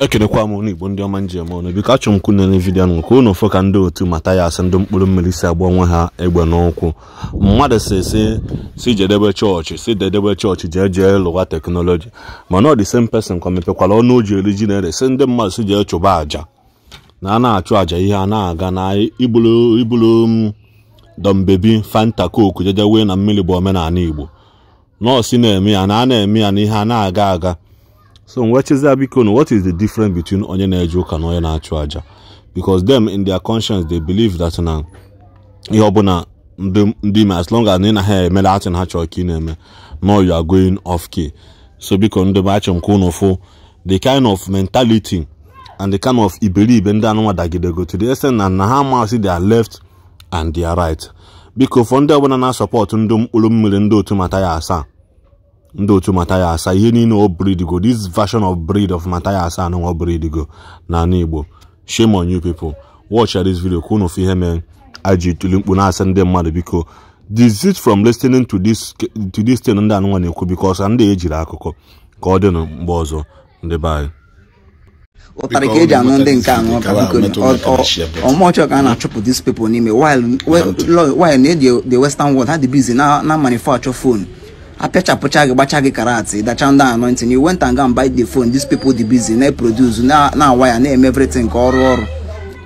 ekenekwa m ụnụ igbo ndị ọma njem ọnụ biko achọ m kwune na vidiyo nụ ka ụnụ fụ ka ndị otu mata ya asị ndị mkpụrụ mmiri si agba onwe ha egbe n'ụkwụ mmadụ si si si jedebe chọọchị si dedebe chọọchị jee jee lụwa teknọlọji mana ọ dị same person ka mepekwara ọnụ oji eri ji na-ere si ndị mmadụ si jee chụba àjà na a na-achụ àja ihe a na-aga na ibulu m mm, dọmbebi fanta koku jeje na mmiri bụ omenala igbo nọọsụ na-eme ya na a na-eme ya na ihe a na-aga aga so m wee biko what is the difference between onye na-eje ụka na onye na-achụ aja because them in their conscience they believe that na ihe ọbụla ndị ime as long as na ha emere atụ na ha chọrọ ka ị na-eme no you are going off key so biko ndị be achọ m ka unu the kind of mentality and the kind of iberibe ndị anụnwa dagidego to the extent na na ha amasị their left and their right biko for ndị ọbụla na-asọpọtụ ndị mkpụrụ mmiri ndị otu mata ya asaa ndị otu mataya asaa ihe niile o bridigo this version of breed of Matai Asa anụ o bridigo n'ala Igbo shame on you people watch this video ka unu ihe mee aji tuli mkpu na-asị ndị mmadụ biko desist from listening to this to this thing ndị anụnwa na-ekwu biko because ndị ejiri akụkọ ka ọ dị na mgbe ọzọ ndị be anyị ụtarị ka eji anụ ndị nke anụ ọmụọchọ ka a na-achụpụ dis people n'ime while na-eji the western world ha dị bizi na manufacture phone apịachapụcha gị gbacha gị karat dacha ndị anointing you went and go and buy the phone these people dị busy na-eproduce na-awa ya na-eme everything nke ọrụ ọrụ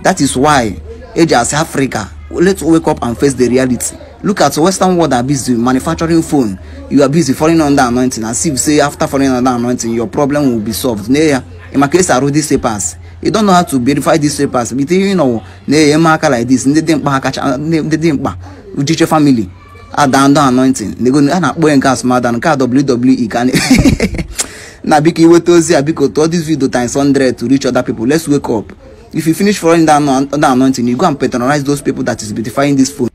that is why eji asị Africa let's wake up and face the reality look at western world are busy manufacturing phone you are busy falling under anointing as if say after falling under anointing your problem will be solved na ya maka esi arụ these papers you don't know how to verify these papers bite you know na-enye aka like this ndị dị mkpa ndị dị mkpa ujiche family adando anointing a na-akpọ ya nke asụmadan nke a WWE ka na biko iweta ozi a biko tụọ this video times 100 to reach other people let's wake up if you finish following that, that anointing you go and patronize those people that is beautifying this phone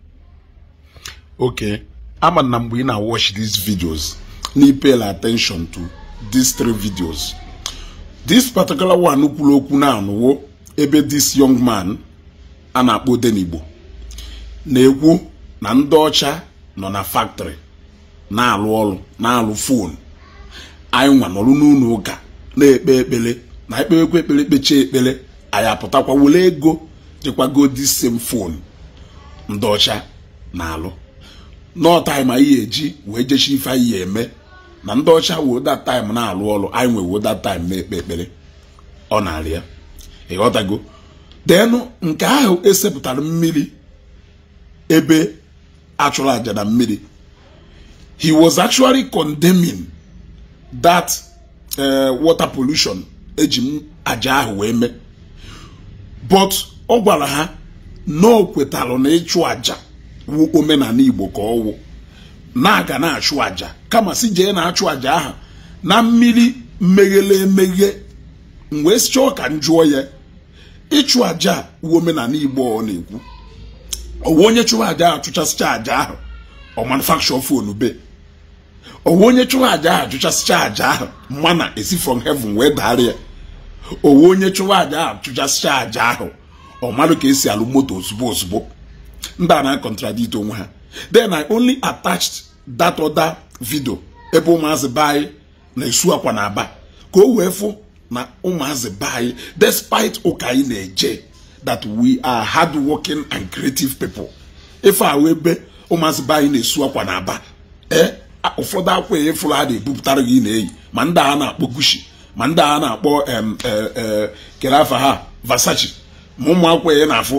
okay ama na mgbe ị na watch these videos na pay attention to these three videos this particular one kwuru okwu na-anụwo ebe this young man a na-akpọ Denigbo na-ekwu na ndị ọcha nọ na factory na-alụ ọrụ na-alụ fon anyị nwa nọrụ n'ụlọ ụka na-ekpe ekpere na ekperekwa ekpere kpechie ekpere anyị apụtakwa wele ego jekwago dị fon ndị ọcha na-alụ nọtaim anyị ga-eji wee jechi ife anyị ya eme na ndị ọcha woda taim na-alụ ọrụ anyị nwe woda taim na-ekpe ekpere ọ na-arịa ya ịghọtago denụ nke ahụ esepụtara mmiri ebe achụrụ aja na mmiri he was actually condemning that uh, water pollution eji m aja ahụ wee mee but ọ gwara ha na ọ kwetalụ na ịchụ aja wu omenala igbo ka ọ wụ na-aga na-achụ aja kama si jee na-achụ aja ahụ na mmiri meghele emeghe m wee si chọọ ka njụọ ya ịchụ aja wu omenala igbo ọ na-ekwu ọwụ onye chụwa aja ahụ aja ahụ ọ manufacture fon be ọwụ onye chụwa aja ahụ chụchasịcha aja ahụ mana esi from heaven wee daara ya owu onye chụwa aja ahụ chụchasịcha aja ahụ ọ marụ ka esi alụ moto ozugbo ozugbo ndị a na-akọntradit onwe ha then I only attached that other video ebe ụmụazị be na-esu akwa na aba ka o wee fụ na ụmụazị be anyị despite ụka anyị na-eje that we are hardworking and creative people ife ahụ ebe ụmụazị be anyị na-esu akwa na aba ụfọdụ eh? akwa efuru a na-ebupụtara gị na-eyi ma ndị a na-akpọ gushi ma eh, eh, ndị a na-akpọ kere afa ha vasachi ma ụmụ akwa ya na-afụ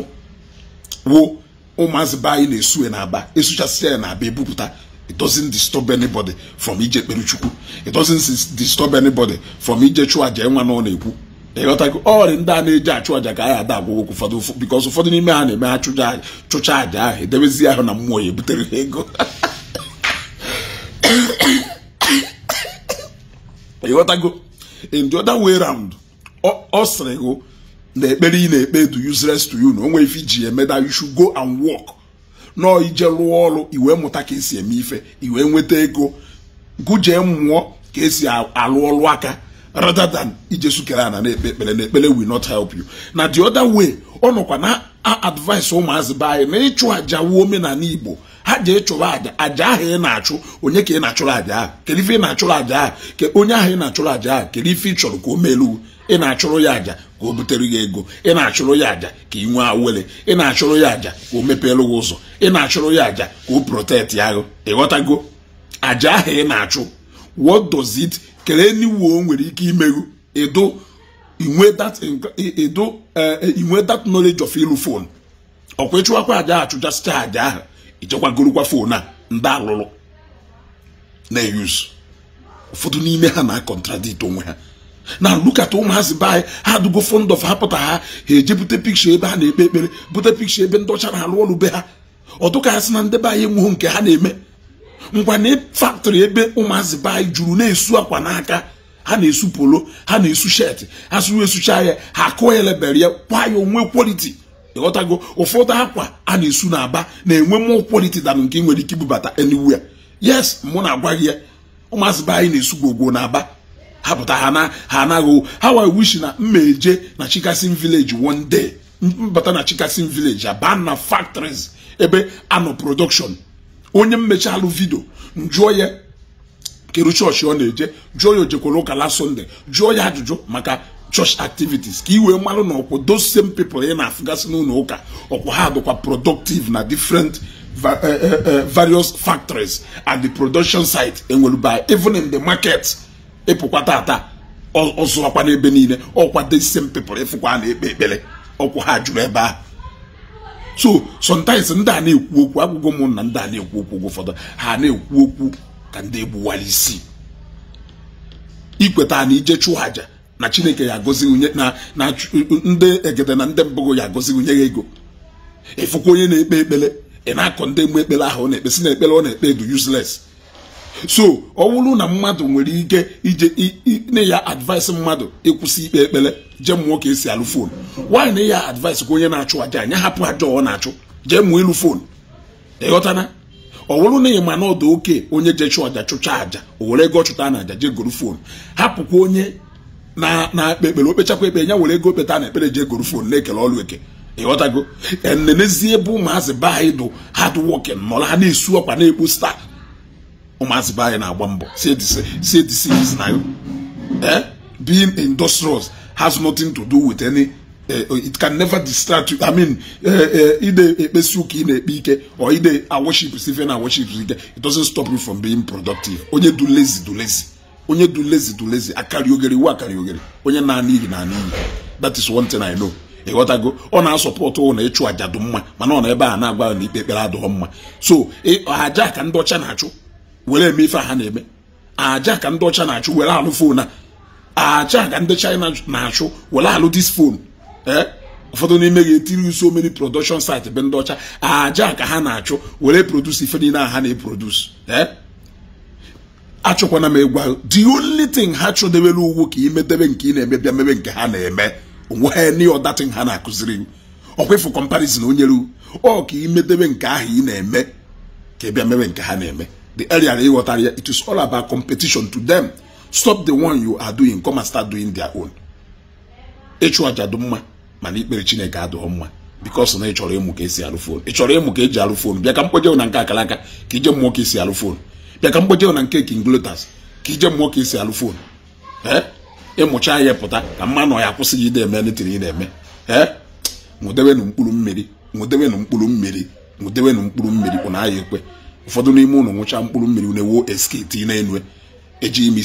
wo ụmụazị be anyị na-esu na aba esuchasịa ya na aba It doesn't disturb anybody from ije kperuchukwu it doesn't disturb anybody from ije chụọ aja enwa na ọ na-ekwu ịghọtago ọrị ndị a na-eji achụ aja ka ya ada agwụgwọ ụfọdụ bikọs ụfọdụ n'ime ha na-eme ha chụcha àjà ahụ edebezi ahụ na mmụọ ya ebutere ha ego ịghọtago in the other way round ọ sịrị gụ na ekpere ị na-ekpe do useless to you na onwe ife iji eme that you should go and work nọọ ije rụọ ọrụ iwee mụta ka esi eme ife iwee nweta ego gụjee mmụọ ka esi arụ ọrụ aka rather than ijesu kere ana na-ekpe ekpere na ekpere will not help you na the other way ọ nọkwa na advice ụmụazị be anyị na ịchụ àja wuo omenala igbo ha ji chụrụ aja aja ahụ ị na-achụ onye ka ị na-achụrụ aja ahụ kedu ife ị na-achụrụ aja ahụ onye ahụ ị na-achụrụ aja ahụ kedu ife ị chọrọ ka o melu ị na-achụrụ ya aja ka o butere ya ego ị na-achụrụ ya aja ka ị nwee awele ị na-achụrụ ya aja ka o mepeelu ụzọ ị na-achụrụ ya aja ka o protect ya ahụ aja ahụ ị na-achụ what does it kelee n'iwu o nwere ike imeghu ịdụ inwe that e, e, e, ịdụ inwe that knowledge of ilu phone ọkwa ịchụwakwa aja achụjasịcha aja ahụ ichekwagorokwa phone a ndị alụrụ na-eyuzu ụfọdụ n'ime ha na-akọntradit onwe ha na lukata ụmụazị be anyị ha dugo fond of ha pụta ha ha eje bute pikcha ebe ha na-ekpe ekpere bute pikcha ebe ndocha na-alụ ọrụ be ha ọtụka ha sị na ndị be anyị enweghị nke ha na-eme ngwa na faktori ebe ụmụazị be juru na-esu akwa n'aka ha na-esu polo ha na-esu shet ha sụrụ esucha ya ha kụọ ya lebere ya kwa ya onwe kwaliti ịghọtago ụfọdụ akwa a na-esu n'aba na-enwe mmụọ kwaliti danụ nke nwere ike ibubata anywhere yes mụ na-agwa gị ya ụmụazị be anyị na-esu gwogwo n'aba ha pụta ha na ha anaghị ha wa wishi na mma na chikasin village one day mbata na chikasin village abana na factories ebe anọ production onye mmechi alụ vidio njụọ ya church chọọchị ọ na-eje jụọ ya ojekwara ụka la sọnde jụọ ya ajụjụ maka church activities ka ị wee na ọkwụ those same people ị na-afụgasị n'ụlọ ụka ọkwụ ha dịkwa productive na different eh, eh, eh, various factories and the production site enwere by even in the market ịpụkwa e tata ọzụọkwa n'ebe niile ọkwa the same people ịfụkwa e na-ekpe ekpere ọkwụ ha jụrụ ebe ahụ so sometimes ndị a na-ekwu okwu agwụgwọ ụmụnna ndị a na-ekwu okwu oge ha na-ekwu okwu ka ndị egbuwara isi ikweta na ije chụọ àjà na chineke ya agọzi onye na ndị egede na ndị mbụ ya agọzi onye ya ego ịfụkwa onye na-ekpe ekpere ị na-akọ ndị mgbe ekpere ahụ ọ ekpe si na ekpere ọ na-ekpe dị useless so ọ wụrụ na mmadụ nwere ike ije na ya advice mmadụ ịkwụsị ikpe ekpere jee mụọ ka esi alụ fon nwaanyị na ya advice ka onye na-achụ aja anya hapụ aja ọ na-achụ jee mụọ ịlụ fon ịghọtana ọ wụrụ na ịma ma na ọdụ oke onye jee chụọ aja chụcha aja o were ego ọchụta na aja jee goro fon hapụkwa onye na akpe ekpere okpechakwa ekpere ya were ego peta na ekpere jee goro fon na-ekele ọrụ eke ịghọtago enenezie ebe ụmụazị be anyị dụ hard nọla ha na-esu ọkwa na-ekpo staa ụmụazị be anyị na-agba mbọ say the cities na being industrious has nothing to do with any eh, it can never distract you i mean eh, eh, ide ekpesi ụka ị na-ekpe ike or ide aworship sife na aworship ike it doesn't stop you from being productive onye du lazy du lazy onye du lazy du lazy akarị ogere iwu akarị ogere onye na-anị iyi na-anị iyi that is one thing i know ịghọtago ọ na-asọpọtụ na ịchụ aja dụ mma mana ọ na ebe a na-agwa na ikpe ekpere adụghọ mma so aja ka ndị ọcha na-achụ were eme ife ha na-eme aja ka ndị ọcha na-achụ were alụ foonu a aja ka ndị china na-achụ were alụ dis foonu ee ụfọdụ n'ime ga-etiri so many production site be ndị ọcha aja ka ha na-achụ were produce ife niile ha na-eproduce ee achụkwana m egwa the only thing ha chụdebere ugwu ka imedebe nke ị na-eme bịa mebe nke ha na-eme onweghị any other thing ha na-akụziri m ọkwefu comparison onye ruo ọ ka imedebe nke ahụ ị na-eme ka ị bịa mebe nke ha na-eme the area they water area, it is all about competition to them. Stop the one you are doing, come and start doing their own. Ịchụ aja dị mana ikpere Chineke adịghị mma because na ị chọrọ ka esi alụ fon ị chọrọ ka eji alụ fon bịa ka mkpoje na nke akalaka ka ije mmụọ ka esi alụ fon bịa ka mkpoje na nke king lotus ka ije mmụọ ka esi alụ fon ee ịmụcha ya pụta ka mmanụ ya kwụsị gị na-eme netiri ị na-eme ee nwụdewenụ mkpụrụ mmiri nwụdewenụ mkpụrụ mmiri nwụdewenụ mkpụrụ mmiri kwụ na ya ekwe ụfọdụ n'ime ụlọ nwụcha mkpụrụ mmiri na-ewu eskiti na-enwe eji ime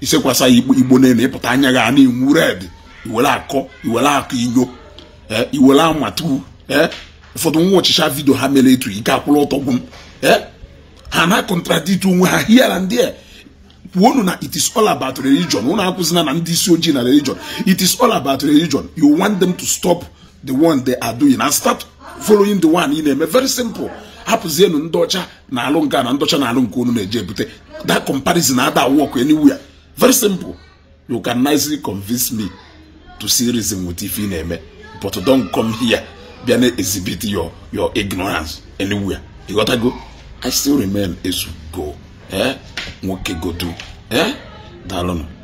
isekwasa ya igbo na-enu ịpụta anya gị ana red iwere akọ iwere akọ inyo eh, iwere amatu eh, ụfọdụ nwa ọchịcha vidio ha mere etu ike akwụrụ ọtọgbu m eh, ha na-akọntradit onwe ha hiara ndị a kwuonu na it is all about religion unu akwụzina na ndị isi ojii na religion it is all about religion you want them to stop the one they are doing and start following the one ị na-eme very simple hapụzienu ndị ọcha na-alụ nga na ndọcha na-alụ nke unu na-eje ebute that comparison ada work anywhere very simple you can nicely convince me to see reason with if ị na-eme but don't come here bịa na-exhibit your your ignorance anywhere go i still remain ezugo eh nwoke godu eh daalụnụ